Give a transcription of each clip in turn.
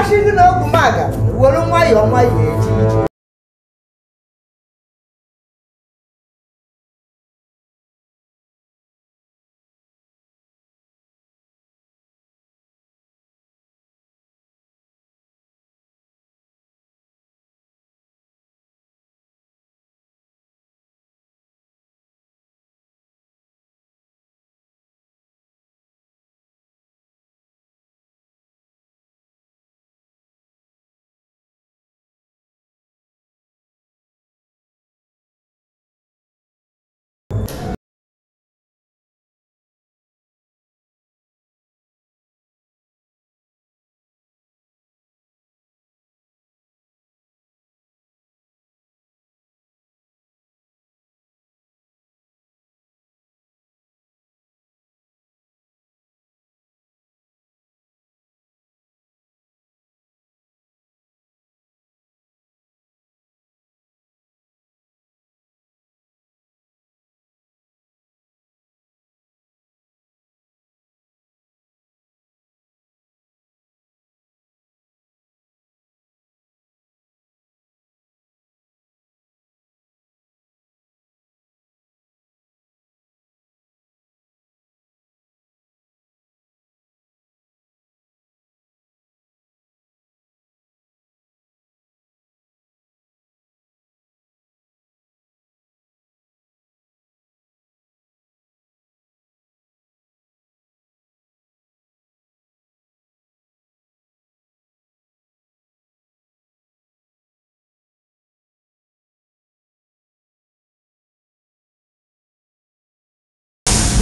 asịzi na ọgwụ maga were nwayọọ nwayọọ eji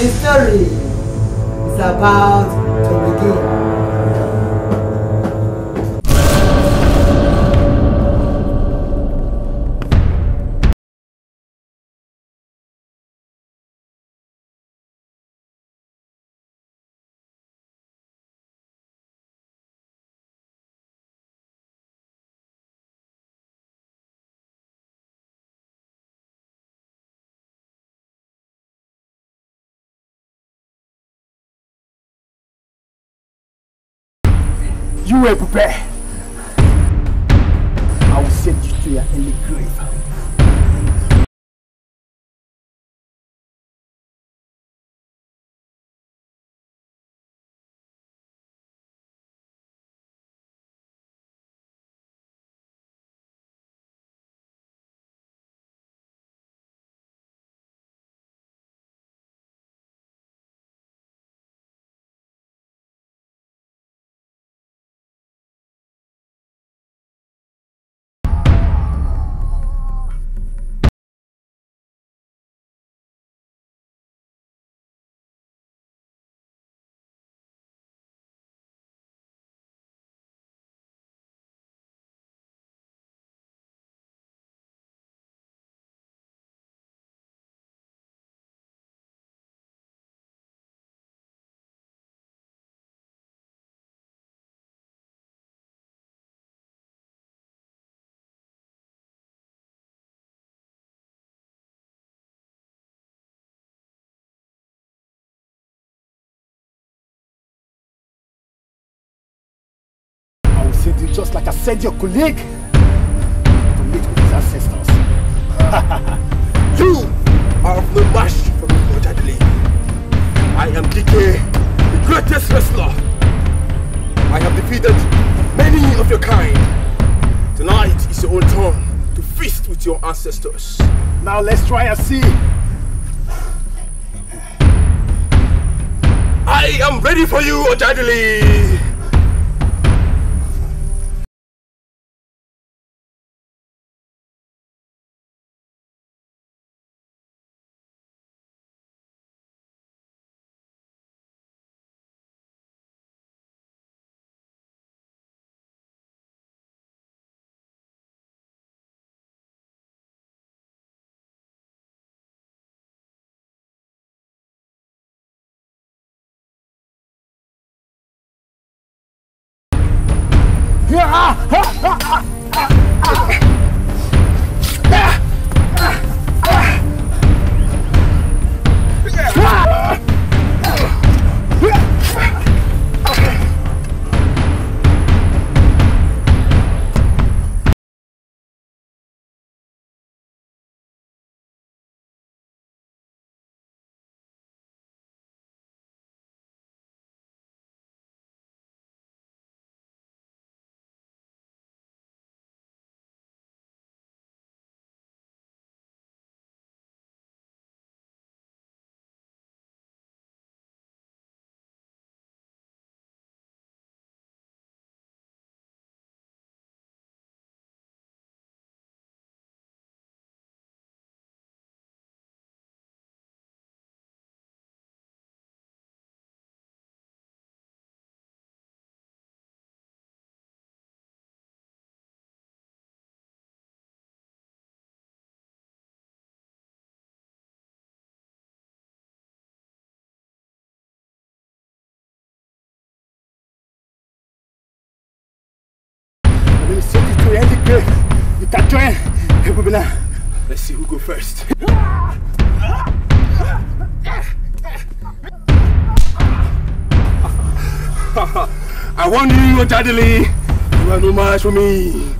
The story is about to begin. I will send you to your early grave. Just like I said, your colleague to meet with his ancestors. you are of no match for me, Ojadele. I am DK, the greatest wrestler. I have defeated many of your kind. Tonight is your own turn to feast with your ancestors. Now let's try and see I am ready for you, Ojadili! 啊！Start trying. Hey, Babila. Let's see who go first. I want you, Jadili. You are no match for me.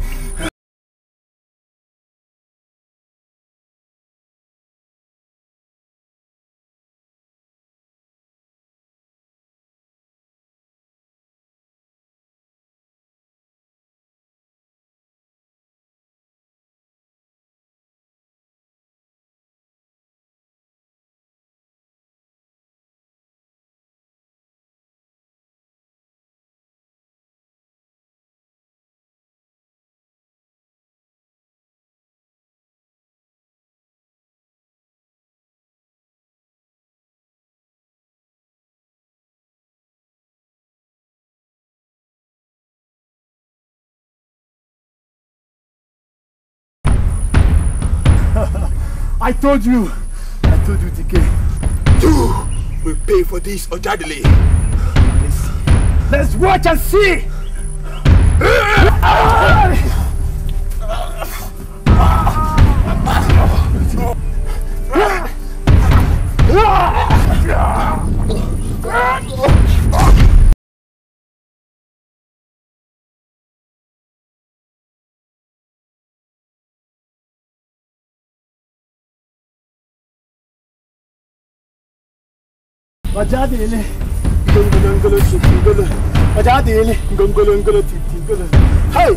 I told you. I told you, TK. You will pay for this, Ojadele. Let's, let's watch and see. Ah! ọ̀jáde ilé ngolongolo tìtì ngolo ọ̀jáde ilé ngolongolo tìtì ngolo hei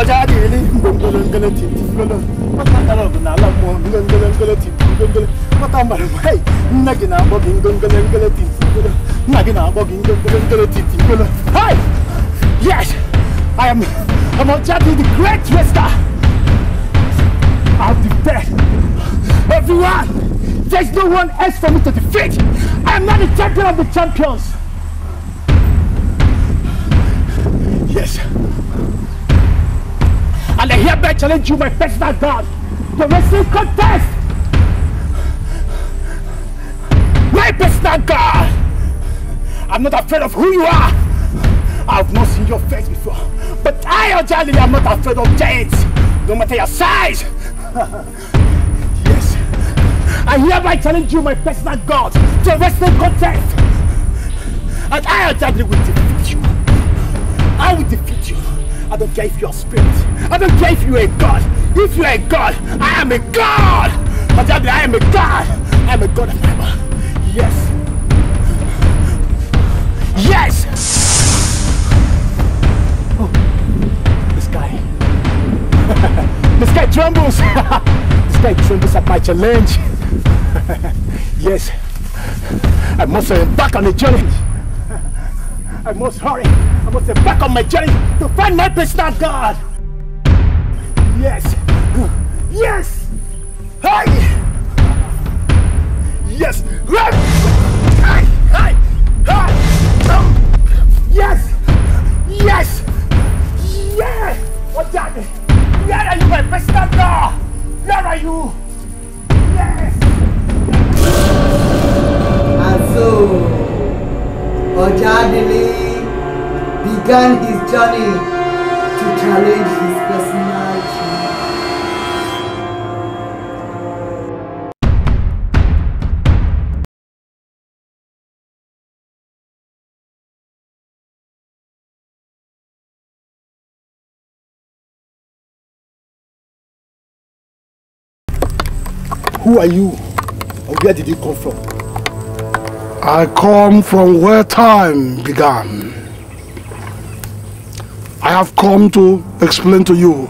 ọ̀jáde ilé ngolongolo tìtì ngolo mọtàndàlọ bụ n'ala mmụọ ngolongolo tìtì ngolo mọta mbara mbụ hei nne gị na gina gị ngolongolo tìtì ngolo nna Na gina akpọ gị ngolongolo tìtì ngolo Hey, yes I am I'm Ọ̀jáde the great wester I'll the best everyone. There's no one else for me to defeat. I am not the champion of the champions. Yes. And I hereby challenge you, my personal God, to wrestling contest. My personal God. I'm not afraid of who you are. I've not seen your face before. But I, Ojali, am not afraid of giants, no matter your size. I hereby challenge you, my personal God, to a wrestling contest. And I undoubtedly will defeat you. I will defeat you. I don't care if you're a spirit. I don't care if you're a God. If you're a God, I am a God. Undoubtedly, I am a God. I am a God of Bible. Yes. Yes! Oh, this guy. this guy trembles. this guy trembles at my challenge. yes, I must embark uh, back on the journey. I must hurry. I must embark uh, back on my journey to find my friend God. Yes, yes, hey, yes, hey, hey, hey, um, yes, yes, yeah. What's that? Where are you, my friend God? Where are you? also, Ojadili began his journey to challenge his personality. Who are you? And where did you come from? I come from where time began. I have come to explain to you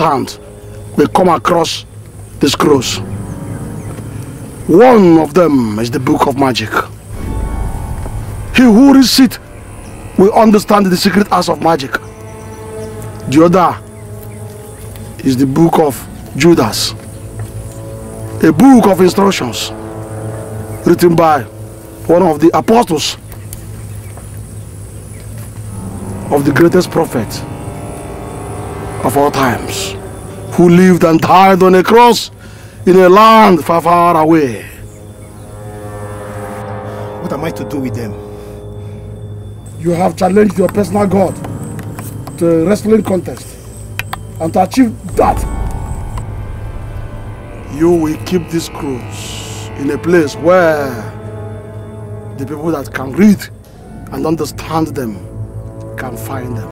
stand will come across the scrolls. One of them is the book of magic. He who reads it will understand the secret arts of magic. The other is the book of Judas, a book of instructions written by one of the apostles of the greatest prophet of all times, who lived and died on a cross in a land far, far away. What am I to do with them? You have challenged your personal God to a wrestling contest. And to achieve that, you will keep these scrolls in a place where the people that can read and understand them can find them.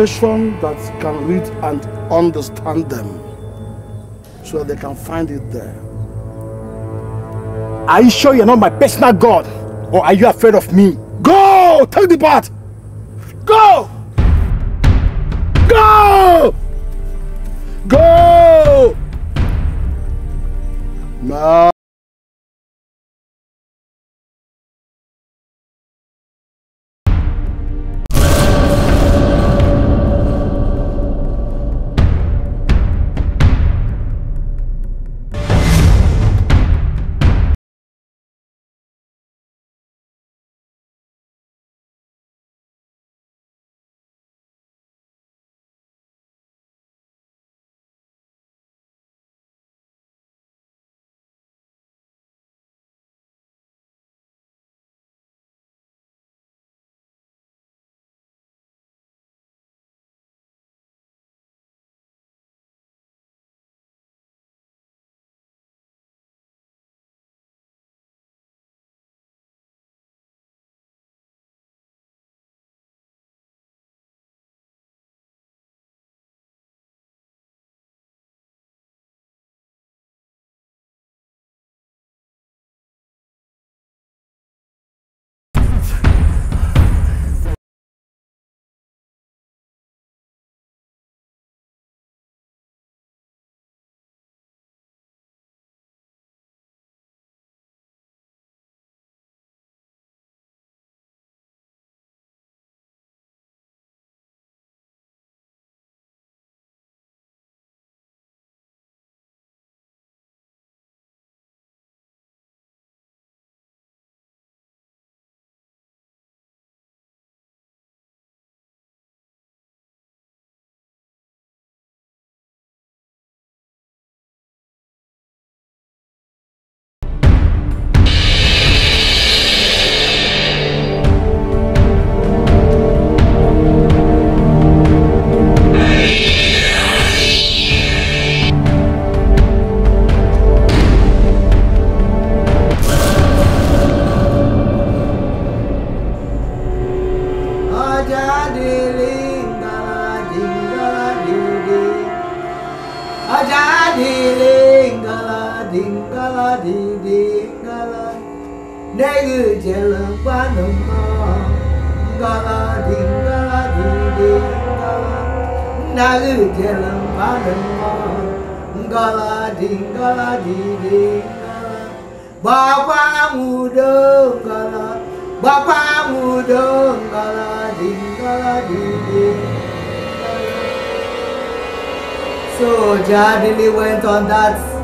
person that can read and understand them so they can find it there. Are you sure you're not my personal God? Or are you afraid of me? Go! Take the part. Go! Go! Go! No. gala di di di di di di di di di di di So Jadili went on that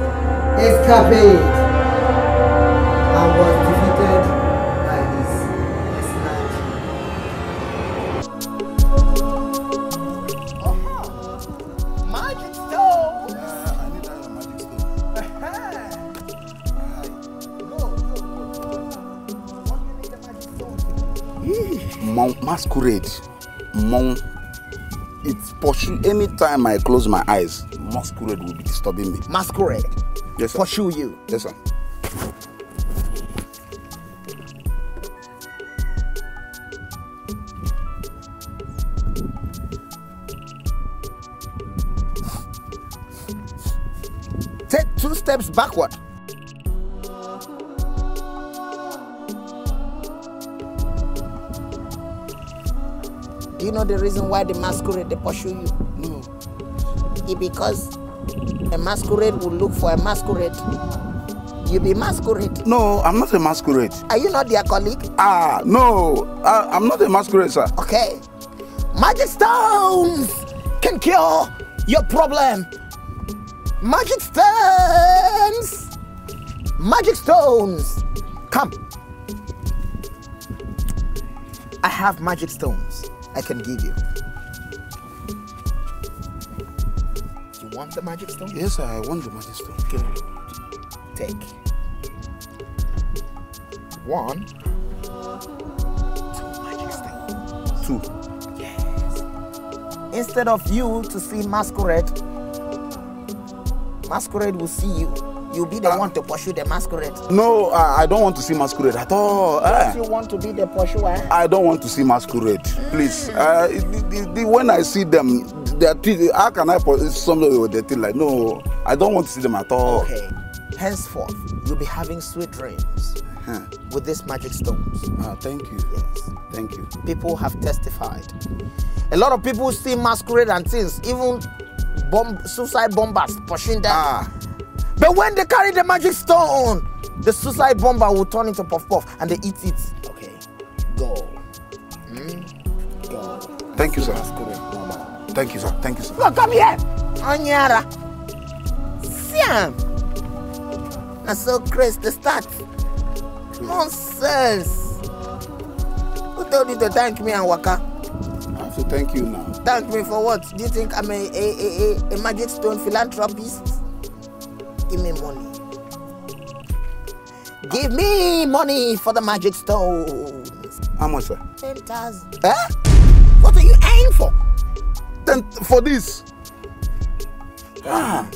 Escaped and was defeated by his escort. huh. magic stone. Uh, I need that magic stove. Mount Masquerade, Mount it's pursuing anytime I close my eyes, masquerade will be disturbing me. Masquerade? Yes, sir. Pursue you. Yes, sir. Take two steps backward. Do you know the reason why the masquerade they pursue you? Mm. It because a masquerade will look for a masquerade. You be masquerade. No, I'm not a masquerade. Are you not their colleague? Ah, no, ah, I, am not a masquerade, sir. Okay. Magic stones can cure your problem. Magic stones. Magic stones. Come. I have magic stones I can give you. want the magic stone? Yes, I want the magic stone. Good. Take one, two magic stones. Two. Yes. Instead of you to see masquerade, masquerade will see you. you'll be the uh, one to pursue the masquerade. No, I, I don't want to see masquerade at all. Yes, uh, you want to be the pursuer. I don't want to see masquerade, please. Uh, the, the, the, when I see them, they are, how can I pursue somebody with the thing like, no, I don't want to see them at all. Okay. Henceforth, you'll be having sweet dreams huh. with these magic stones. Ah, thank you. Yes. Thank you. People have testified. A lot of people see masquerade and things, even bomb, suicide bombers pushing them. Ah. But when they carry the magic stone, the suicide bomber will turn into puff puff and they eat it. Okay, go. Mm? Go. Eh? Thank you, sir. Thank you, sir. Thank you, sir. No, come here. Anyara. Siam. I so crazy the start. Nonsense. Who told you to thank me and Waka? I have to thank you now. Thank me for what? Do you think I'm a, a, a, a magic stone philanthropist? give me money. Give me money for the magic stones. How much, sir? 10,000. Eh? What are you aiming for? Then for this? Ah.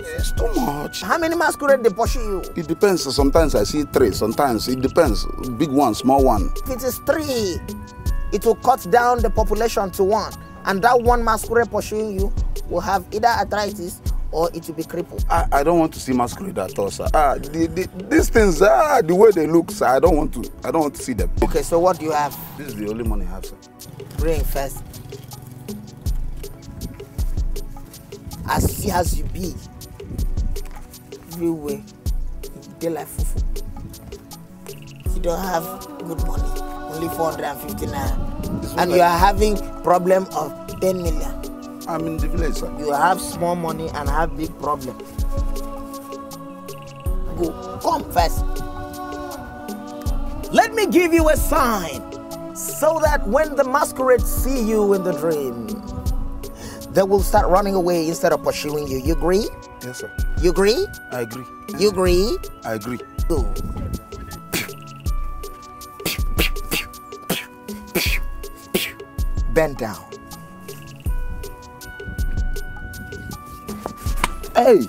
It's too much. How many masquerade they pursue you? It depends. Sometimes I see three. Sometimes it depends. Big one, small one. If it is three, it will cut down the population to one. And that one masquerade pursuing you will have either arthritis or it will be crippled. I, I don't want to see masquerade at all, sir. Ah, the, the, these things, ah, the way they look, sir, I don't want to. I don't want to see them. Okay, so what do you have? This is the only money I have, sir. Bring first. As see as you be, everywhere, day Delightful. fufu. You don't have good money, only four hundred and fifty nine. and you are having problem of 10 million. I'm in the village, sir. You have small money and have big problem. Go, come first. Let me give you a sign so that when the masquerades see you in the dream, they will start running away instead of pursuing you. You agree? Yes, sir. You agree? I agree. You agree? I agree. Go. Bend down. Hey!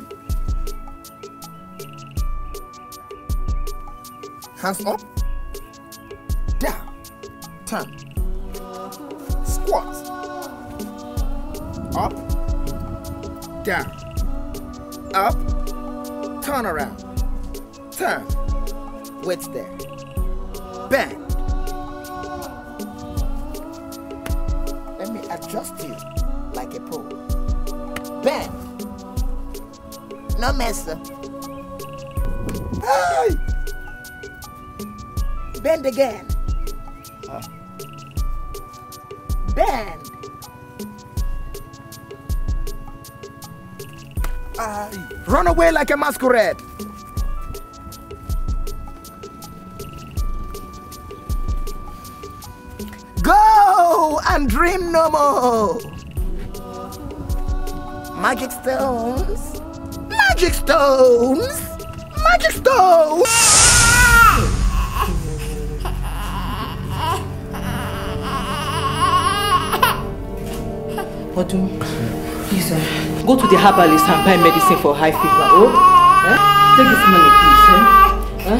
Hands up. Down. Turn. Squat. Up. Down. Up. Turn around. Turn. What's there? no messer. Hey! Bend again. Huh? Bend. Run away like a masquerade. Go and dream no more. Magic stones. Magic stones! Magic stones! Odun, please, uh, go to the herbalist and buy medicine for high fever, oh? Eh? Take this money, please, Huh? Eh? Eh?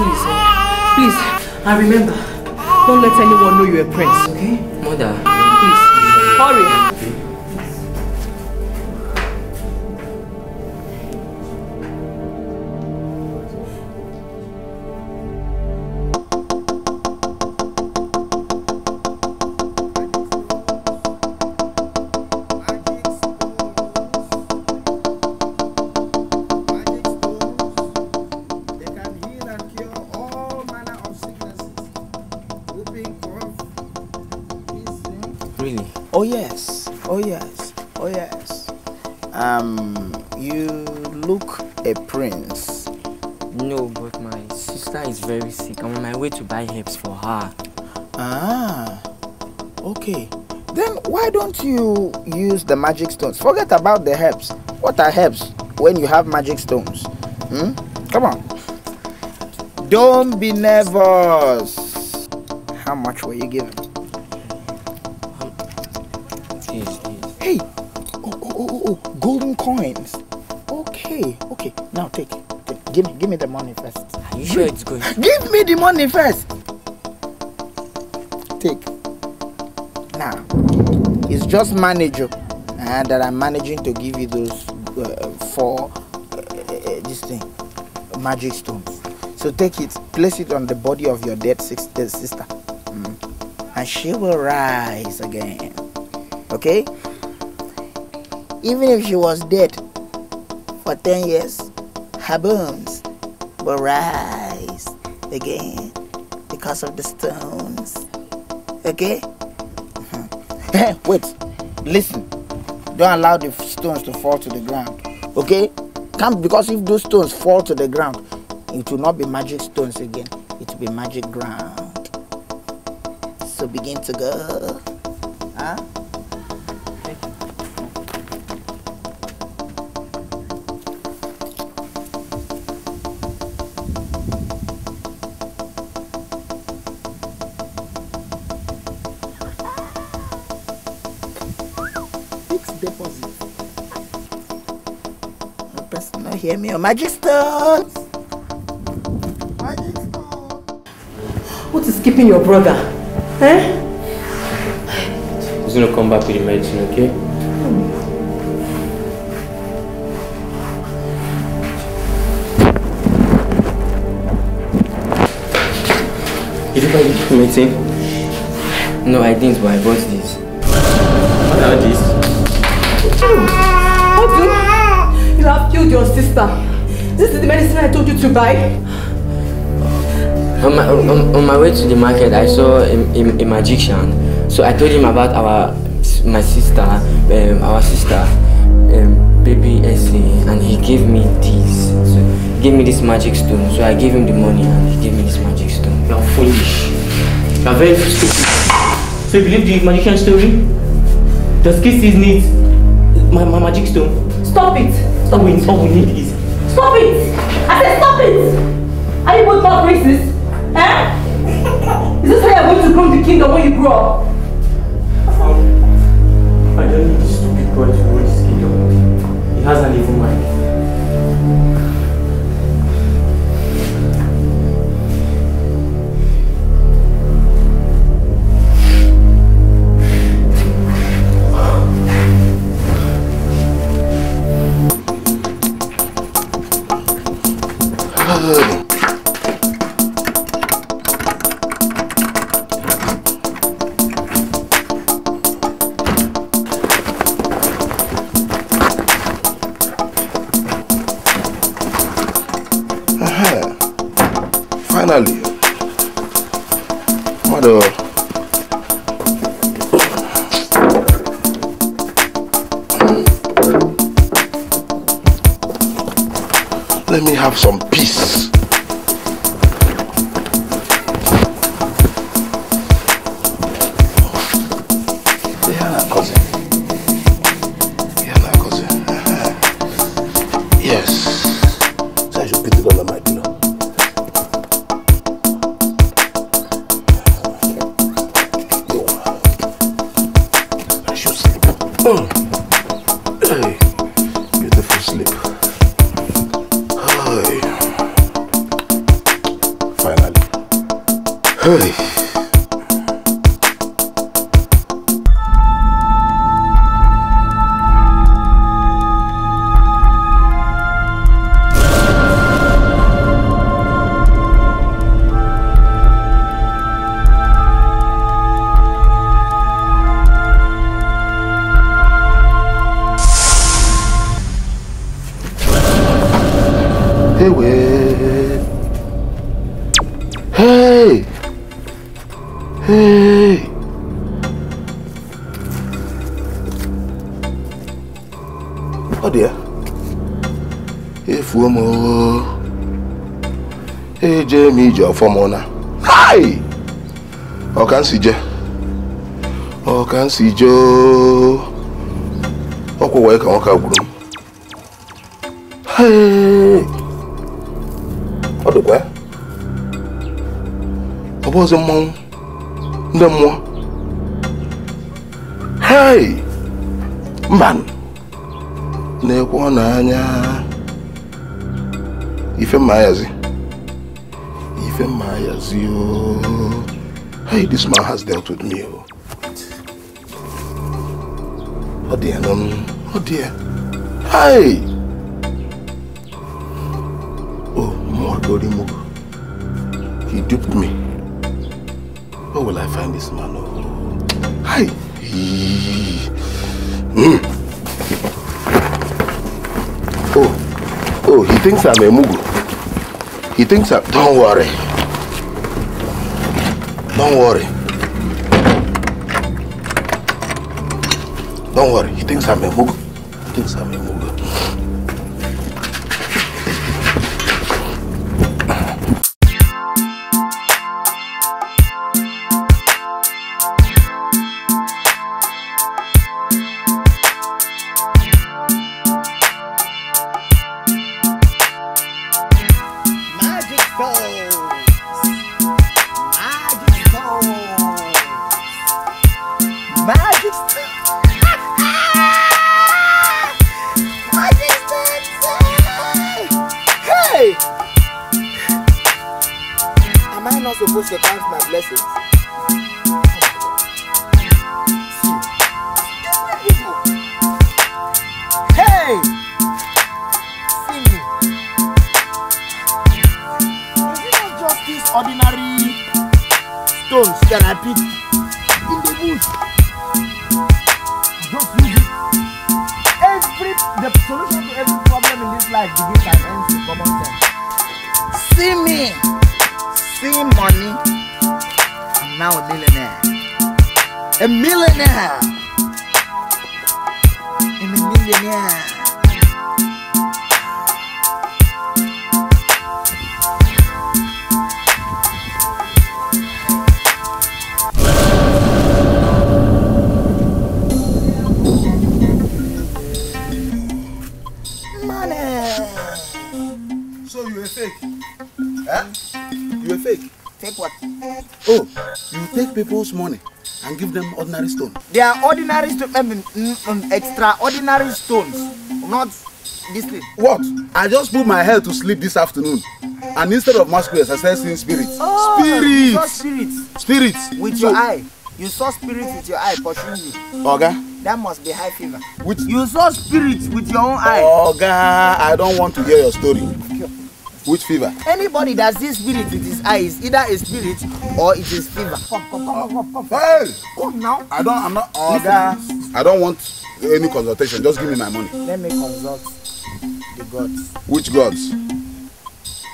Please, eh? please, and remember, don't let anyone know you're a prince, okay? Mother, please, hurry. why don't you use the magic stones? Forget about the herbs. What are herbs when you have magic stones? Hmm? Come on. Don't be nervous. How much were you given? Hey, oh, oh, oh, oh, golden coins. Okay, okay. Now take it. Give me, give me the money first. Are you sure it's good? Give me the money first. Take. Now. It's just manager uh, that I'm managing to give you those uh, four uh, uh, uh, this thing magic stones. So take it, place it on the body of your dead sister, mm. and she will rise again. Okay? Even if she was dead for 10 years, her bones will rise again because of the stones. Okay? Eh, wait, listen. Don't allow the stones to fall to the ground. Okay? Come, because if those stones fall to the ground, it will not be magic stones again. It will be magic ground. So begin to go. Huh? é meu magister. What is keeping your brother? Eh? He's gonna come back with the medicine, okay? Hmm. Did you buy the medicine? No, I didn't, but I bought this. What are these? your sister. This is the medicine I told you to buy. On my, on, on my way to the market, I saw a, a, a, magician. So I told him about our my sister, um, our sister, um, baby Essie, and he gave me this. So he gave me this magic stone. So I gave him the money, and he gave me this magic stone. You are foolish. You are very stupid. So you believe the magician story? Does Kiss needs my, my magic stone? Stop it! All we, all we need is... Stop it! I said stop it! Are you both not racist? Eh? is this how you're going to grow the kingdom when you grow up? Um, I don't need this stupid boy to grow this kingdom. He has an evil mind. ー Ewe. Hey! Hey! Oh dear. Efu ọmọ. Eje mi jẹ ọfọmọ náà. Hi! Ọ̀kan sì jẹ. Ọ̀kan sì jẹ ooo. Ọkọ̀ wọ̀nyí kà wọ́n ká gbùrù. Hey! ọ bụ ọzọ mmọnwụ ndị mmụọ hei mba na-ekwe anya If mma ayazi if mma ayazi ooo oh. hey this man has dealt with me Oh dear, dị ya nọ hey oh more lórí mo he duped me. find this man. Oh. Hi. Mm. Oh, oh, he thinks I'm a Mugu. He thinks I'm. Don't worry. Don't worry. Don't worry. He thinks I'm a Mugu. He thinks I'm. ordinary stones that I pick in the bush. Just use it. Every the solution to every problem in this life begins and ends with common sense. See me, see money. I'm now a millionaire. A millionaire. I'm a millionaire. people's money and give them ordinary stone. They are ordinary stone, um, mm, um, mm, mm, extraordinary stones, not this thing. What? I just put my head to sleep this afternoon. And instead of masquerades, I started seeing spirits. Oh, spirits! You saw spirits. Spirits. With so, your eye. You saw spirits with your eye pursuing you. Okay. That must be high fever. Which? You saw spirits with your own eye. Oh God! I don't want to hear your story. Which fever? Anybody that sees spirit with his eyes, either a spirit or it is fever. Come, come, come, come, come. Hey! Come now. I don't, I'm not, uh, I don't want any consultation. Just give me my money. Let me consult the gods. Which gods?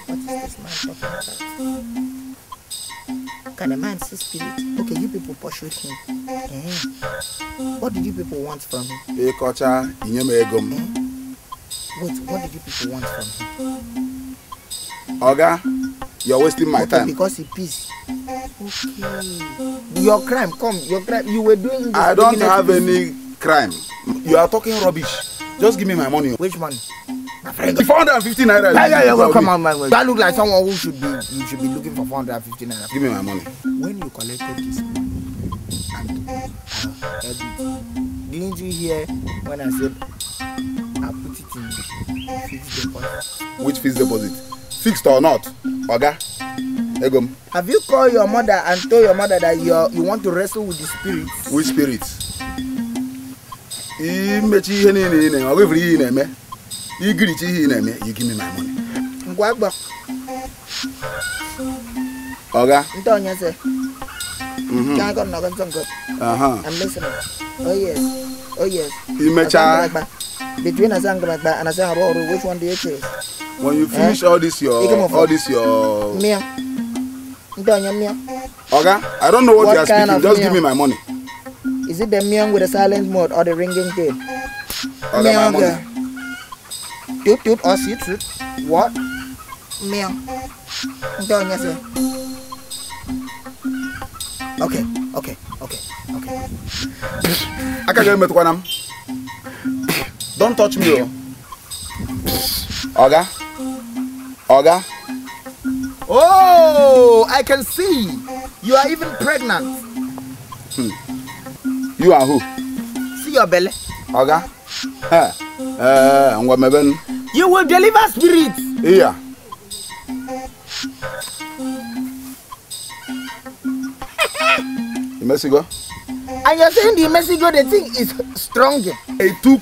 What is this man talking about? Can a man see spirit? Okay, you people pursued him. Eh? What did you people want from him? Hey, Kocha, eh? Wait, what did you people want from him? Oga, you're wasting my okay, time. Because it's peace. Okay. Your crime, come. Your crime. You were doing. This I don't have any crime. You are talking rubbish. Just give me my money. Which money? My friend. 450 naira. Yeah, yeah, yeah. come on, my man. That look like someone who should be. You should be looking for 450 naira. Give me my money. When you collected this money, and, uh, didn't you hear when I said? I put it in fixed deposit. Which fixed deposit? Fixed or not? Oga? Egom? Have you called your mother and told your mother that you you want to wrestle with the spirit? Which spirit? Imechi ihe niile ị na-eme, ọ bụrụ ihe ị na-eme, igirichi ihe ị na-eme, you give me my money. Ngwa agba. Oga? Nte onye sị. Can I go knock on some good? Uh-huh. I'm listening. Oh yes. Oh yes. Imecha. Between Azangraba and Azaharo, which one do you choose? When you eh? finish eh? all this your all this your Mia. Oga, I don't know what, what you are speaking. Just give me my money. Is it the meong with the silent mode or the ringing tail? Oga, my money. Toot toot or oh, sit sit. What? Meong. Don't you say? Okay. okay, okay, okay. I can't get Akagere metụkwana m. Don't touch me oh. Oga. Oga. Oh, I can see. You are even pregnant. Hmm. You are who? See your belly. Oga. Eh. Eh, ngwa meben. You will deliver spirits. Yeah. Messigo? And you're saying the Messigo, the thing is stronger. I took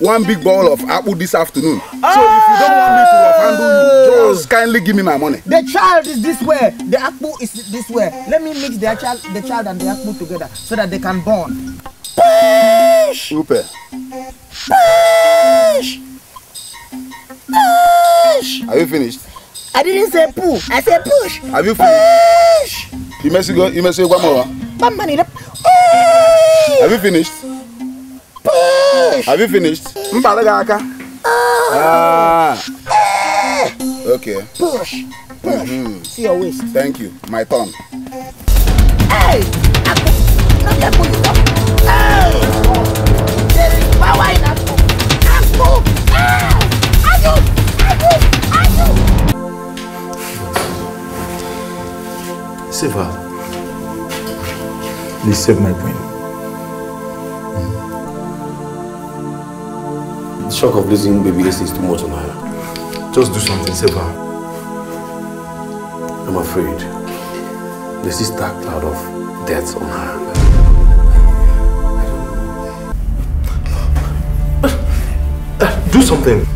one big bowl of apple this afternoon. Oh! So if you don't want me to oh. handle you, just kindly give me my money. The child is this way. The apple is this way. Let me mix the child, the child and the apple together so that they can bond. Push! Upe. Push! Push! Are you finished? I didn't say pull. I said push. Have you finished? Push. You must go. You must say one more. One minute. Push. Have you finished? Push. Have you finished? Mpalagaka. Oh. Ah. Eh. Okay. Push. Push. Mm-hmm. See your waist. Thank you. My turn. Hey. Hey. Power. Save her. Please save my queen. The shock of losing baby Ace is too much on her. Just do something, save her. I'm afraid. There's this dark cloud of death on her. Do something.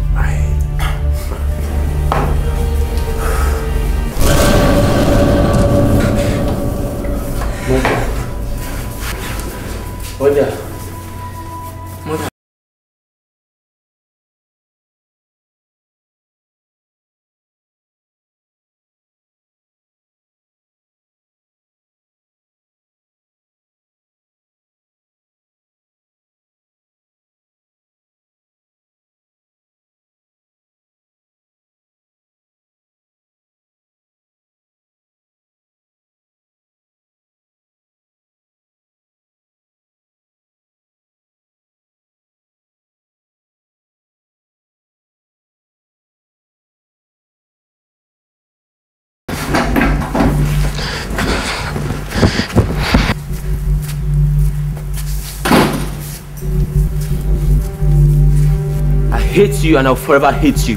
Сегодня hate you and I'll forever hate you.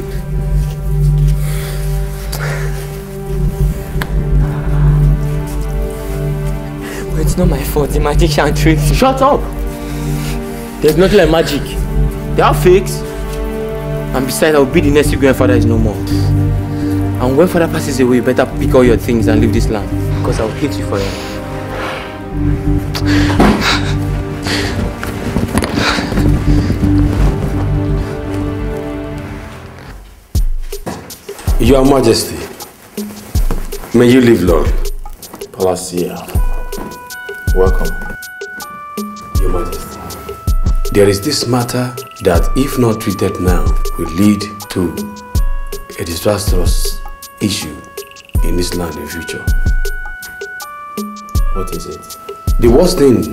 But it's not my fault. The magician tricked me. Shut up! There's nothing like magic. They are fakes. And besides, I'll be the next grandfather is no more. And when father passes away, you better pick all your things and leave this land. Because I'll hate you forever. Your Majesty, may you live long. Palacia, welcome. Your Majesty, there is this matter that if not treated now will lead to a disastrous issue in this land in future. What is it? The worst thing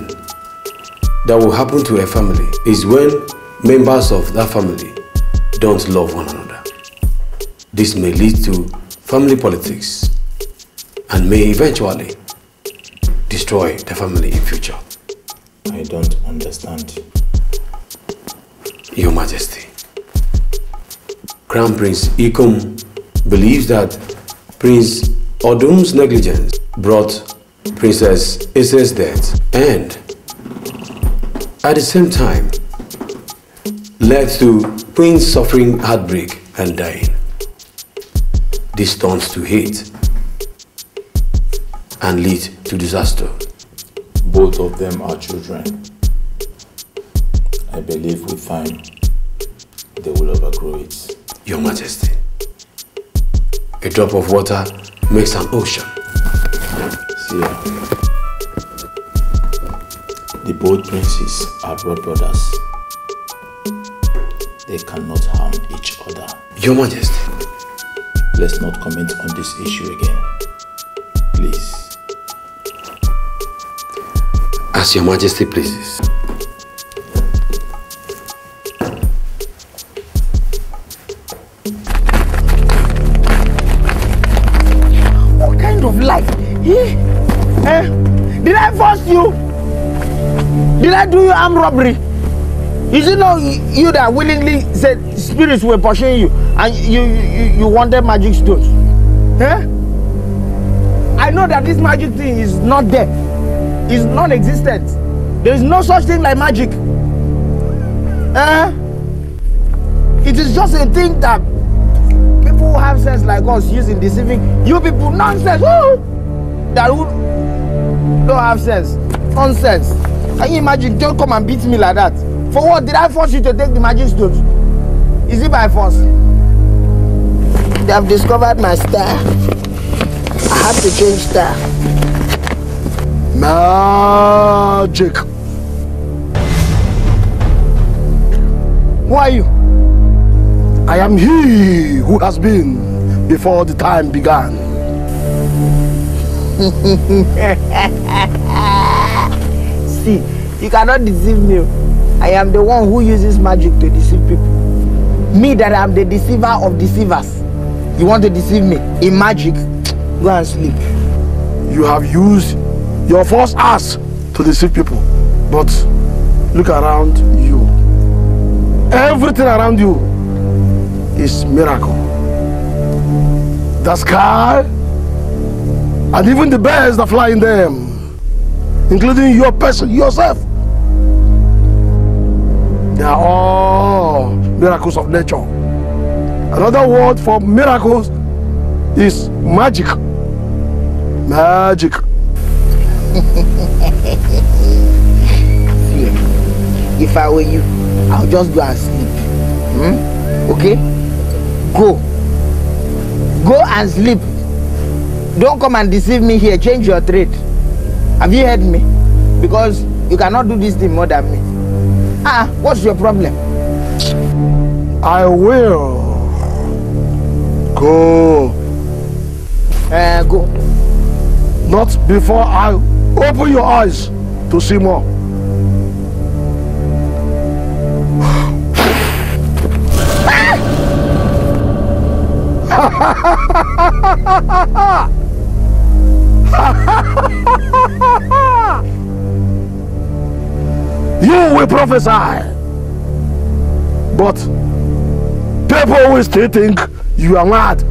that will happen to a family is when members of that family don't love one another. This may lead to family politics and may eventually destroy the family in future. I don't understand. Your Majesty, Crown Prince Ikum believes that Prince Odum's negligence brought Princess Issa's death and at the same time led to Queen suffering heartbreak and dying. This turns to hate and lead to disaster. Both of them are children. I believe with time, they will overgrow it. Your Majesty, a drop of water makes an ocean. See ya. The both princes are blood brothers. They cannot harm each other. Your Majesty, Let's not comment on this issue again. Please. As your majesty pleases. What kind of life? Eh? Did I force you? Did I do you arm robbery? Is it not you that willingly said spirits were pushing you and you, you, you wanted magic stones? Huh? I know that this magic thing is not there. It's non-existent. There is no such thing like magic. Huh? It is just a thing that people who have sense like us use in deceiving you people. Nonsense! Woo! That who don't have sense. Nonsense. Can you imagine? Don't come and beat me like that. For what? Did I force you to take the magistrate? Is it by force? They have discovered my style. I have to change style. Magic. Who are you? I am he who has been before the time began. See, you cannot deceive me. I am the one who uses magic to deceive people. Me that I'm the deceiver of deceivers. You want to deceive me in magic? Go and sleep. You have used your false ass to deceive people. But look around you. Everything around you is miracle. The sky and even the birds that fly in them, including your person, yourself. They are all miracles of nature. Another word for miracles is magic. Magic. if I were you, I'll just go and sleep. Hmm? Okay? Go. Go and sleep. Don't come and deceive me here. Change your trade. Have you heard me? Because you cannot do this thing more than me. Ah, what's your problem? I will go. Uh, go. Not before I open your eyes to see more. you will prophesy. But people will still think you are mad.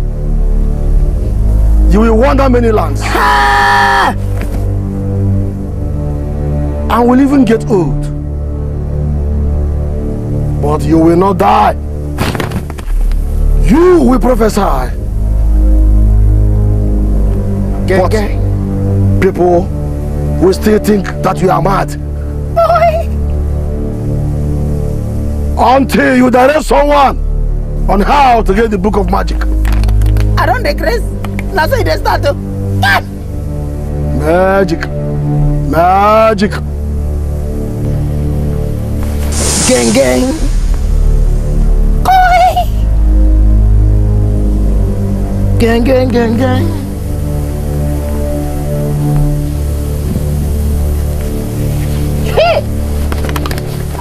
You will wander many lands. And will even get old. But you will not die. You will prophesy. but people will still think that you are mad. until you direct someone on how to get the book of magic. I don't dey craze na so e start ah! magic magic. gang gang. Koi. gang gang gang gang.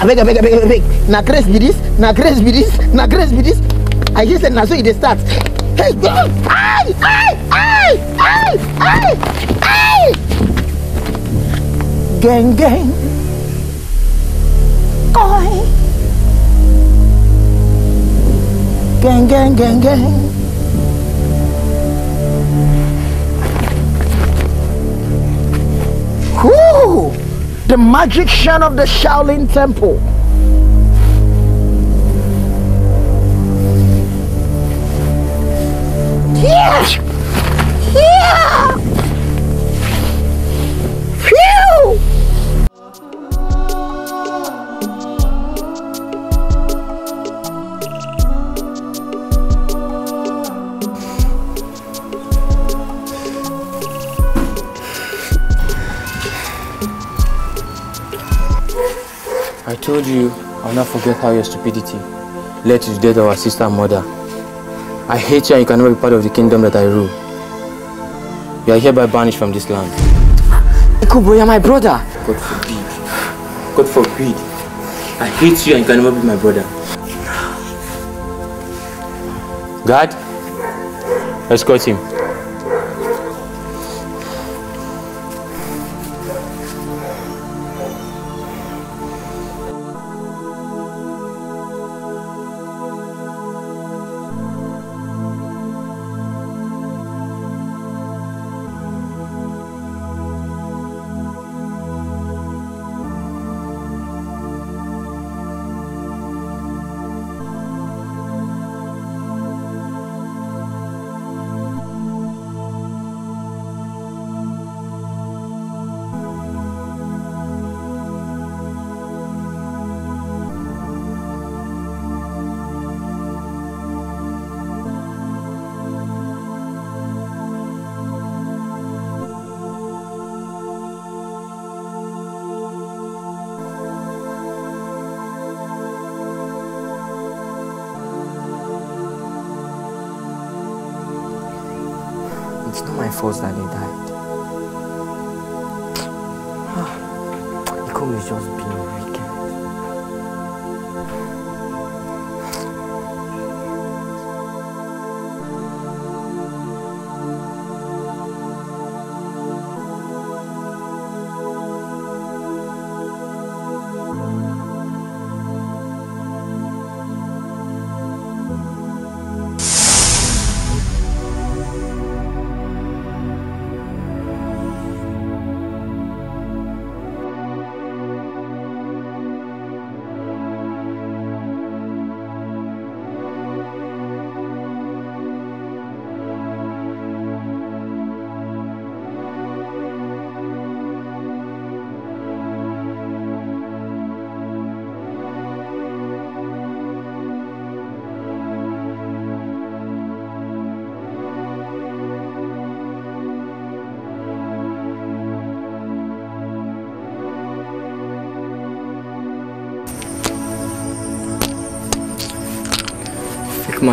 abeg abeg abeg abeg na grace, be this. na grace, be this. na grace, be this. i hear say na so e dey start hey god ay ay ay ay ay ay geng geng koi geng geng geng geng. Whoo! the magician of the Shaolin temple. Yeah! Yeah! told you I'll not forget how your stupidity led to the death of our sister and mother. I hate you and you cannot be part of the kingdom that I rule. You are hereby banished from this land. Ikubo, you're my brother. God forbid. God forbid. I hate you and you can never be my brother. God, escort him. efforts that need that.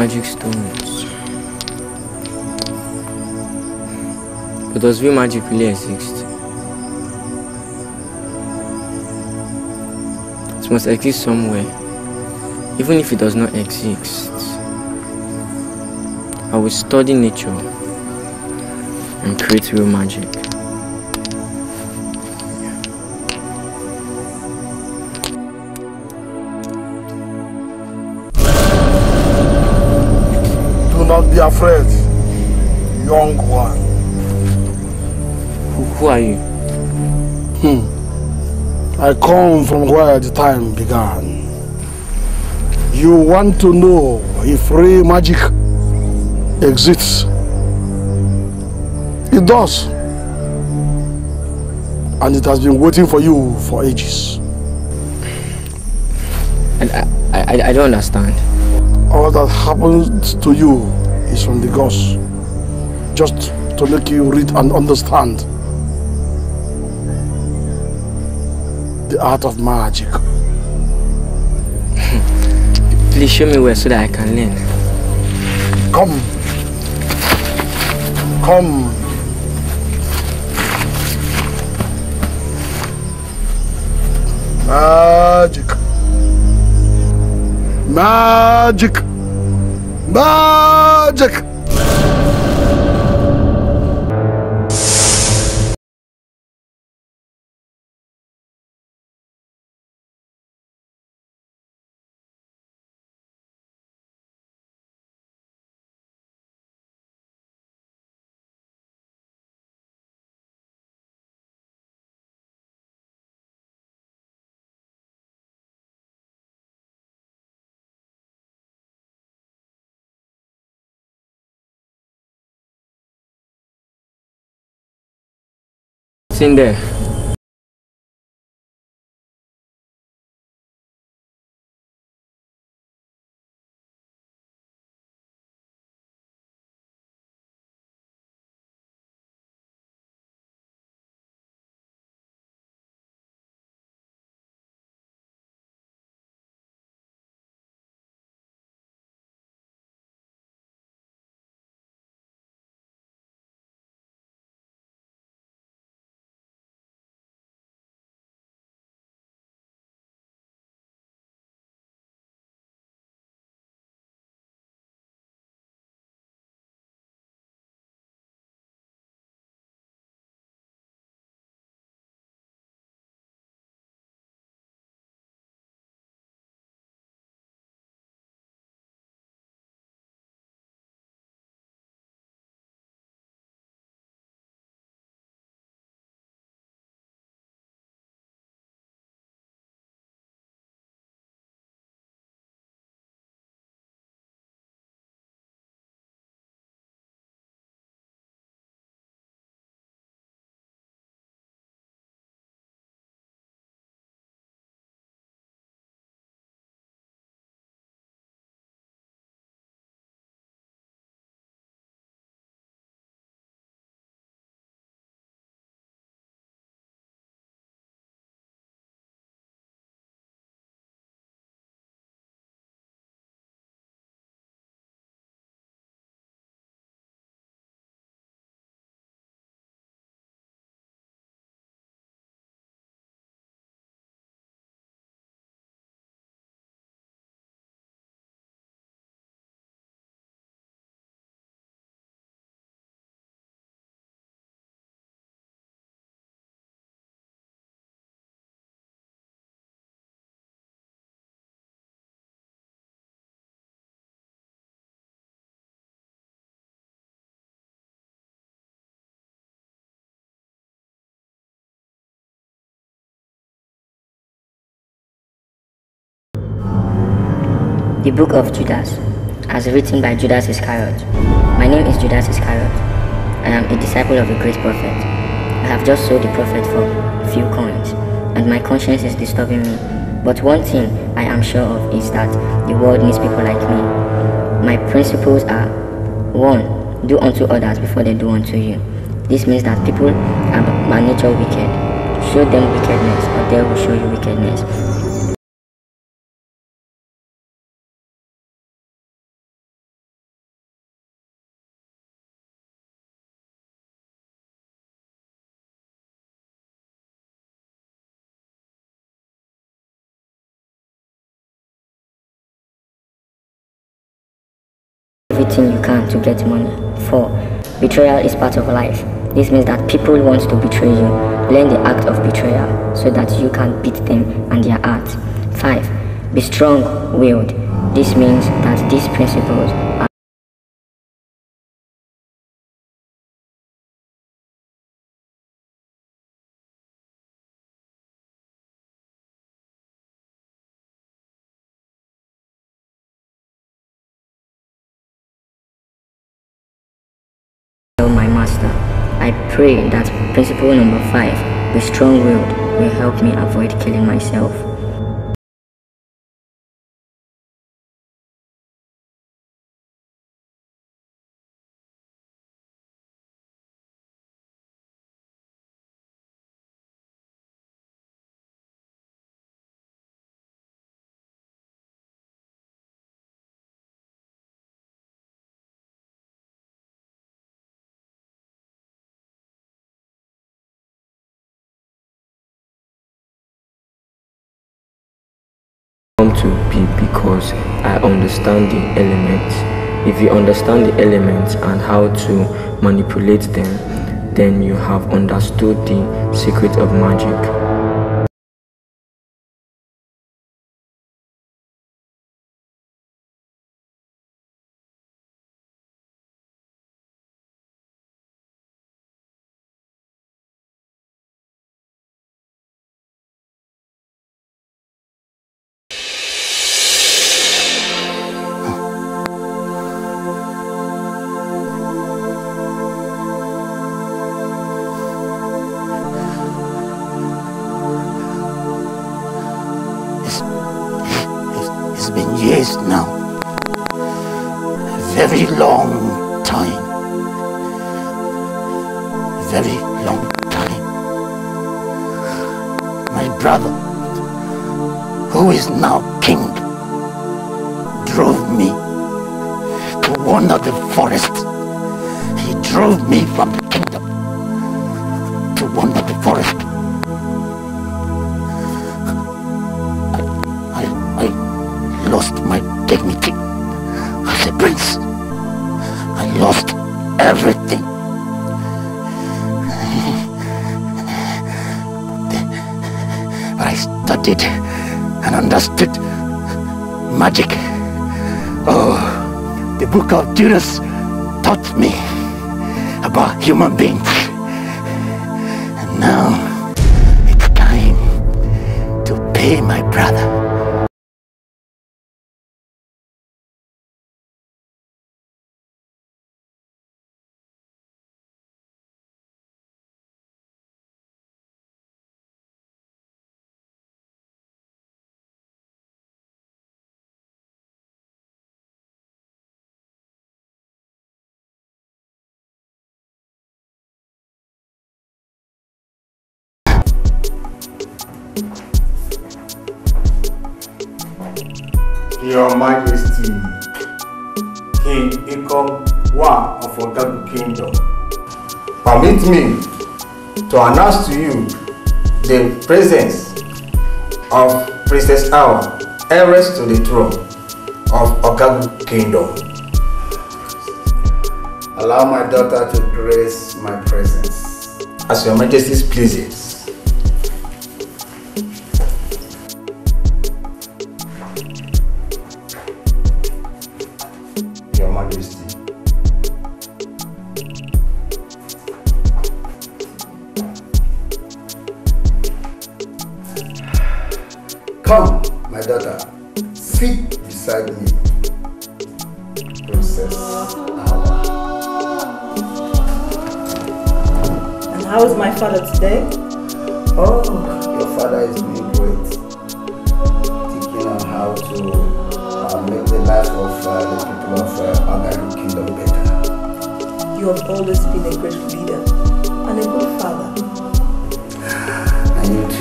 magic stones. But does real magic really exist? It must exist somewhere. Even if it does not exist, I will study nature and create real magic. afraid, young one. Who, who are you? Hmm. I come from where the time began. You want to know if free magic exists? It does. And it has been waiting for you for ages. And I, I, I don't understand. All that happened to you is from the Lagos. Just to make you read and understand the art of magic. Please show me where so that I can learn. Come. Come. Magic. Magic. Bacak. in there The Book of Judas, as written by Judas Iscariot. My name is Judas Iscariot. I am a disciple of a great prophet. I have just sold the prophet for a few coins, and my conscience is disturbing me. But one thing I am sure of is that the world needs people like me. My principles are 1. Do unto others before they do unto you. This means that people are by nature wicked. Show them wickedness, or they will show you wickedness. everything you can to get money. 4. Betrayal is part of life. This means that people want to betray you. Learn the act of betrayal so that you can beat them and their art. 5. Be strong-willed. This means that these principles pray that principle number 5, be strong-willed, will help me avoid killing myself. want to be because I understand the elements. If you understand the elements and how to manipulate them, then you have understood the secret of magic. magic. Oh, the book of Judas taught me about human beings. And now it's time to pay my brother. Your Majesty, King Ikom Wa of Ogagu Kingdom. Permit me to announce to you the presence of Princess Awa, heiress to the throne of Ogagu Kingdom. Allow my daughter to grace my presence. As your majesty pleases.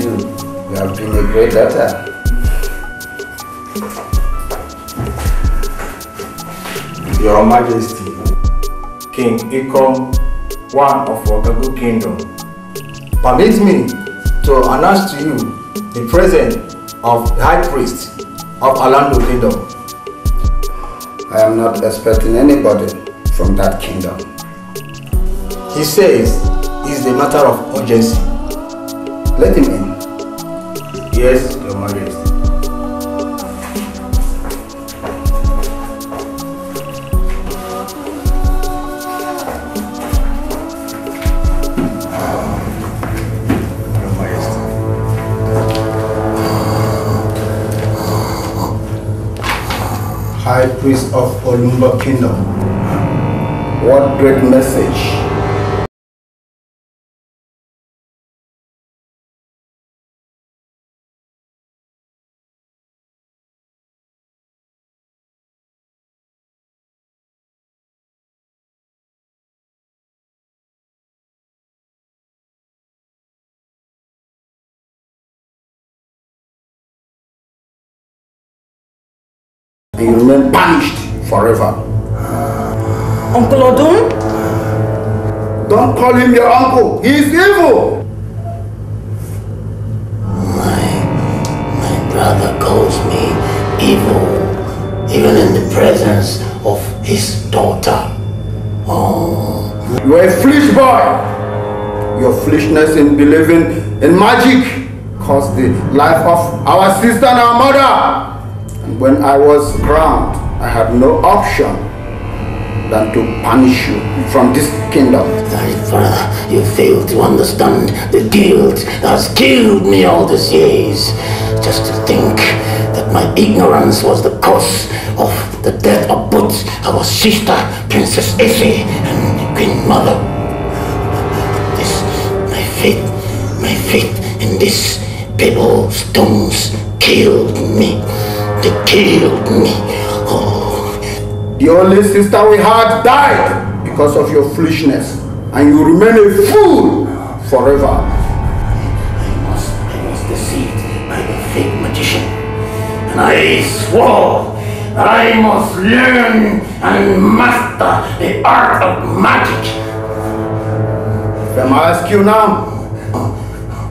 you. You have been a great daughter. Your Majesty, King Ikom, one of Wagagu Kingdom, permit me to announce to you the presence of the High Priest of Alando Kingdom. I am not expecting anybody from that kingdom. He says it's a matter of urgency. Let him Yes, Your Majesty. High Priest of Olumba Kingdom, what great message and you remain banished forever. Uncle Odun? Don't call him your uncle. He is evil. My, my brother calls me evil, even in the presence of his daughter. Oh. You are a foolish boy. Your foolishness in believing in magic caused the life of our sister and our mother when I was crowned, I had no option than to punish you from this kingdom. Thy father, you fail to understand. The guilt has killed me all these years. Just to think that my ignorance was the cause of the death of both our sister, Princess Effie, and Queen Mother. This, my faith, my faith in this people stones killed me. They killed me. The oh. only sister we had died because of your foolishness, and you remain a fool forever. I must, I must deceive by the fake magician, and I swore I must learn and master the art of magic. If I ask you now,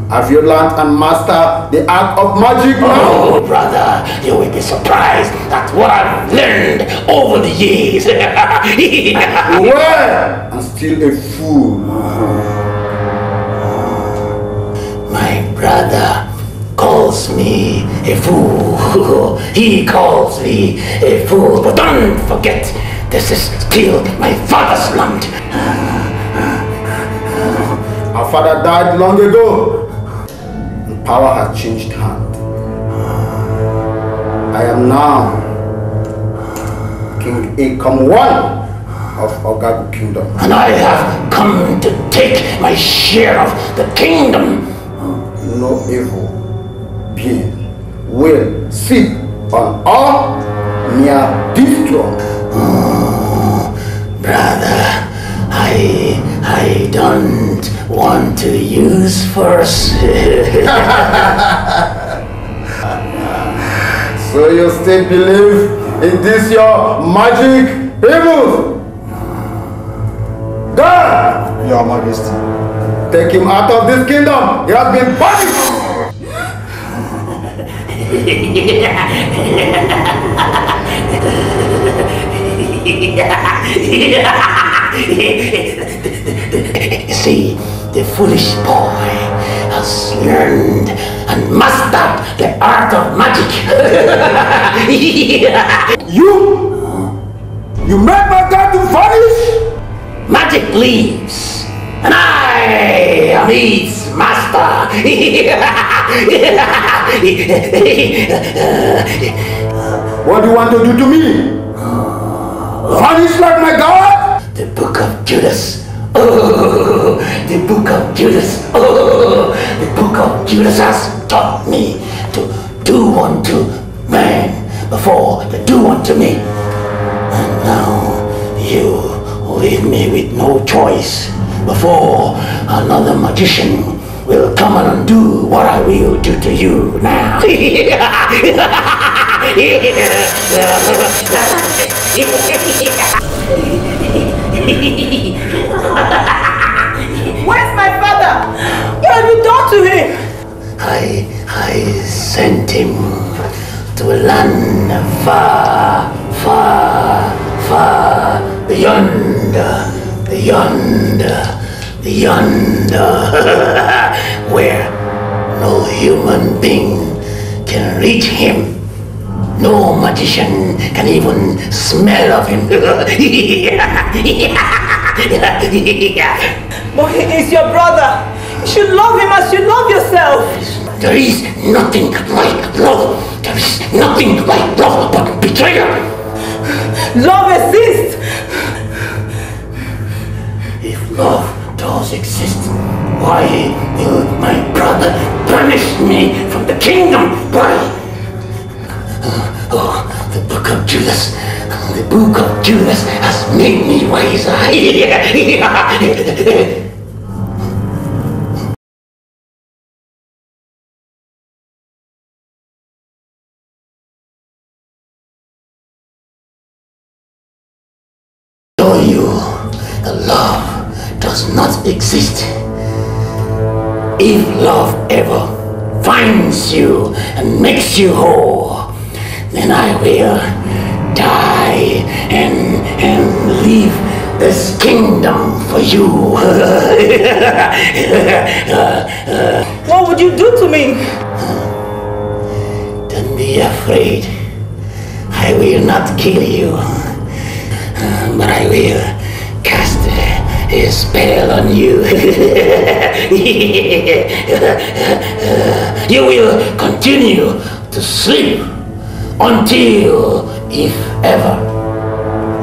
have you learned and mastered the art of magic now? Oh, brother, you will be surprised at what I've learned over the years. well, I'm still a fool. My brother calls me a fool. he calls me a fool. But don't forget, this is still my father's land. Our father died long ago power had changed hand. I am now King Akam One of Ogagu Kingdom. And I have come to take my share of the kingdom. No evil being will sit on our near this throne. Oh, brother, I, I don't one to use for So you still believe in this your magic evil? God! Your Majesty. Take him out of this kingdom. He has been punished. yeah. yeah. See, the foolish boy has learned and mastered the art of magic. you? You make my god to vanish? Magic leaves, and I am its master. what do you want to do to me? Judas. Oh, the book of Judas. Oh, the book of Judas has taught me to do unto man before to do unto me. And now you leave me with no choice before another magician will come and undo what I will do to you now. Where's my father? What have you done to him? I, I sent him to a land far, far, far beyond, beyond, beyond, where no human being can reach him. No magician can even smell of him. but he is your brother. You should love him as you love yourself. There is nothing like love. There is nothing like love but betrayal. Love exists. If love does exist, why will my brother banish me from the kingdom? Why? Oh, the book of Judas, the book of Judas has made me wiser. Show you the love does not exist. If love ever finds you and makes you whole, then I will die and and leave this kingdom for you. what would you do to me? Don't be afraid. I will not kill you, but I will cast a spell on you. you will continue to sleep until, if ever,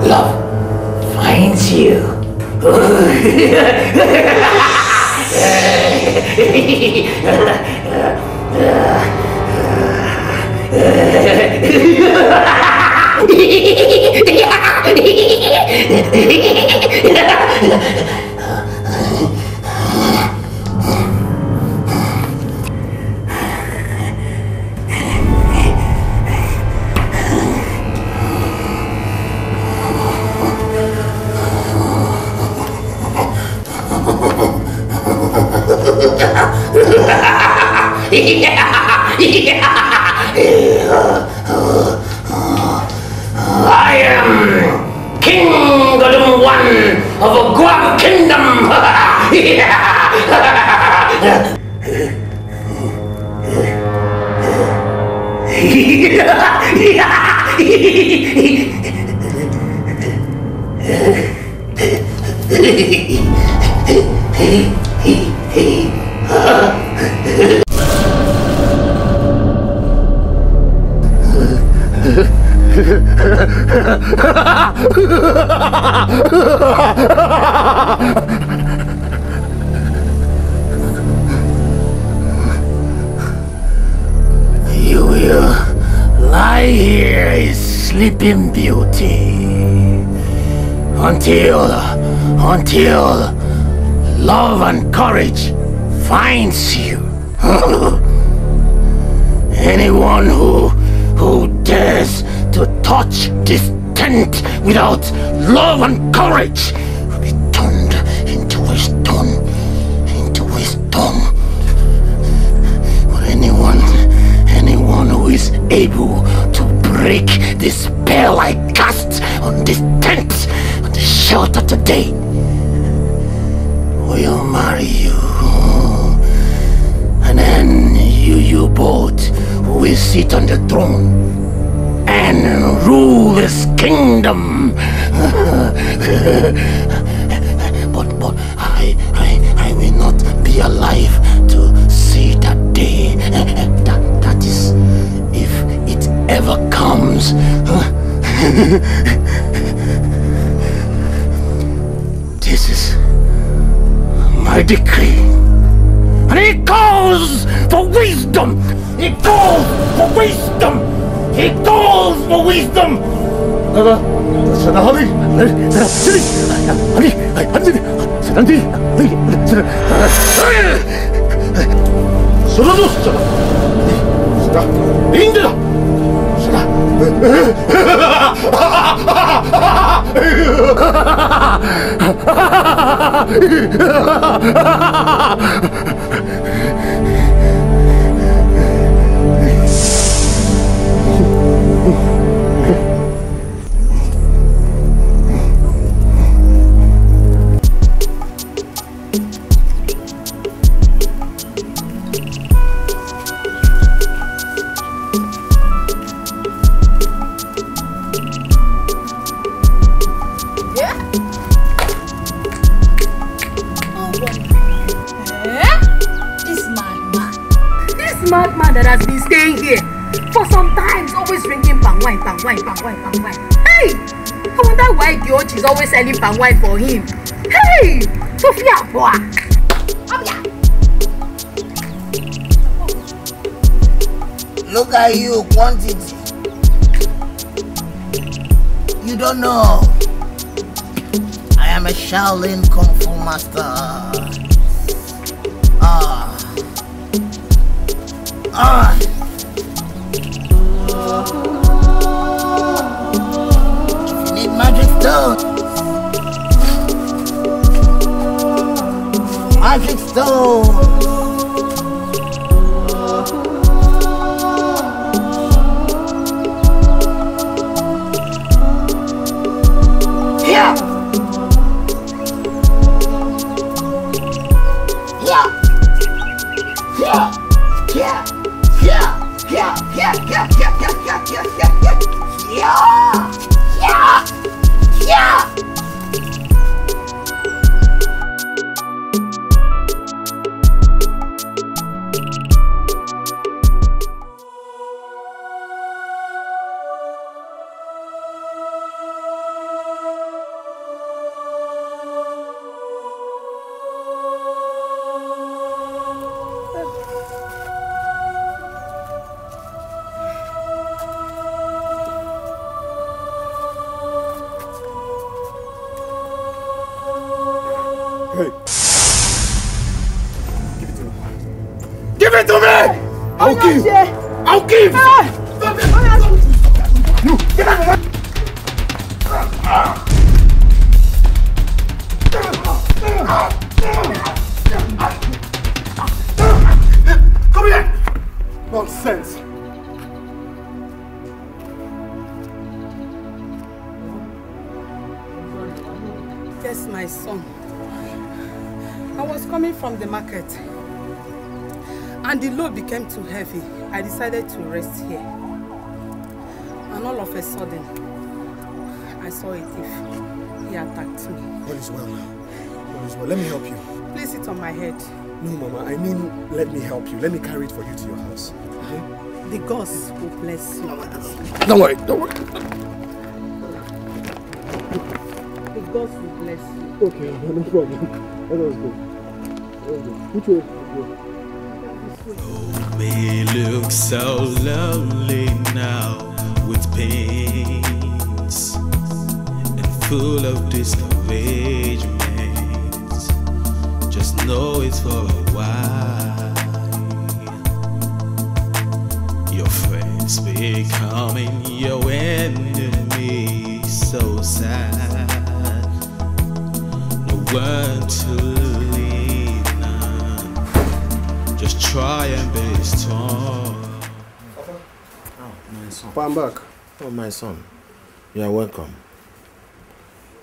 love finds you. I am King Golden One of a Guam Kingdom. Hey, hey, hey. you will lie here a sleeping beauty until, until love and courage finds you. Anyone who, who dares touch this tent without love and courage will be turned into a stone, into a stone. anyone, anyone who is able to break the spell I cast on this tent, on the shelter today, will marry you. And then you, you both, will sit on the throne and rule this kingdom. but but I, I, I will not be alive to see that day. that, that is, if it ever comes. this is my decree. And it calls for wisdom! It calls for wisdom! He calls for wisdom! だが、そのはり、そのすり、はり、はり、そのり、はり、その、そのどうしたら、その、いいんだよその、selling palm wine for him. Hey! boy! Come here! Look at you, quantity. You don't know. I am a Shaolin Kung Fu master. Ah. Ah. ah. Don't. decided to rest here. And all of a sudden, I saw a thief. He attacked me. All is well now. All is well. Let me help you. Place it on my head. No, Mama. I mean, let me help you. Let me carry it for you to your house. Okay? The gods will bless you. Don't worry. Don't worry. The gods will bless you. Okay, no problem. Let us go. Let us go. Which way? me look so lonely now with pains and full of discouragement. Just know it's for a while. Your friends becoming your enemy, so sad. No one to try and be strong. Oh, my son. I'm back. Oh, my son. You are welcome.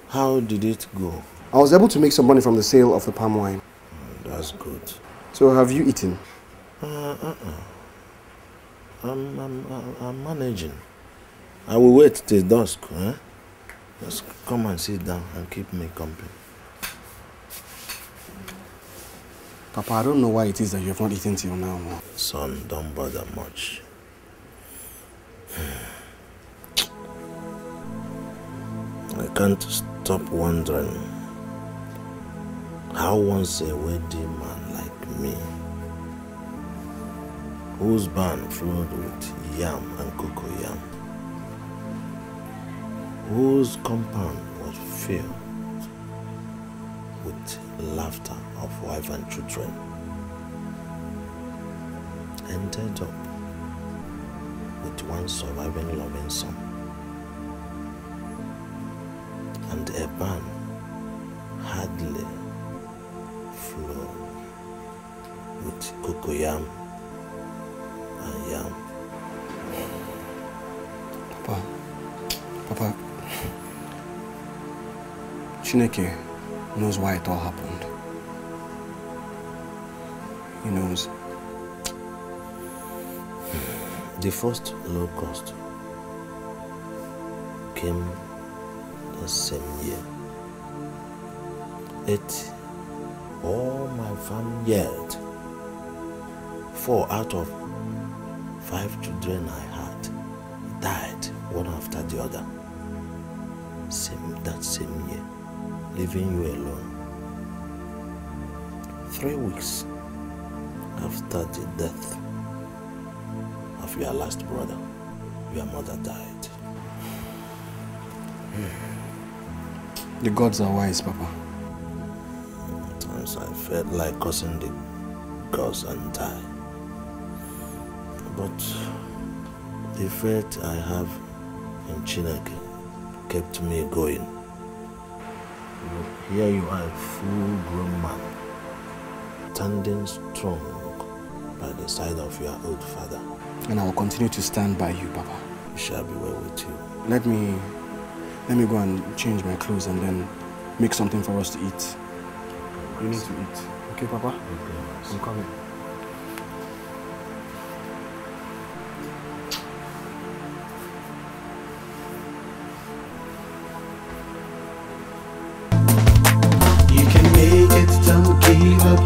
How did it go? I was able to make some money from the sale of the palm wine. Oh, that's good. So have you eaten? Uh, uh, uh. I'm, I'm, I'm managing. I will wait till dusk. eh? Just come and sit down and keep me company. Papa, I don't know why it is that you have not eaten till now. Son, don't bother much. I can't stop wondering how once a wedding man like me, whose barn flowed with yam and cocoa yam, whose compound was filled with laughter, of wife and children ended up with one surviving loving son and a man hardly flow with cocoyam and yam. Papa, Papa, Chineke knows why it all happened you know, the first low cost came the same year. It, all my family vineyard, four out of five children I had died one after the other. Same, that same year, leaving you alone. Three weeks after the death of your last brother, your mother died. The gods are wise, Papa. Sometimes I felt like cursing the gods and die. But the faith I have in Chinaki kept me going. Here you are, a full-grown man, standing strong by the side of your old father. And I will continue to stand by you, Papa. It shall be well with you. Let me, let me go and change my clothes and then make something for us to eat. You need to eat. Okay, Papa? Okay. I'm coming.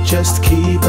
just keep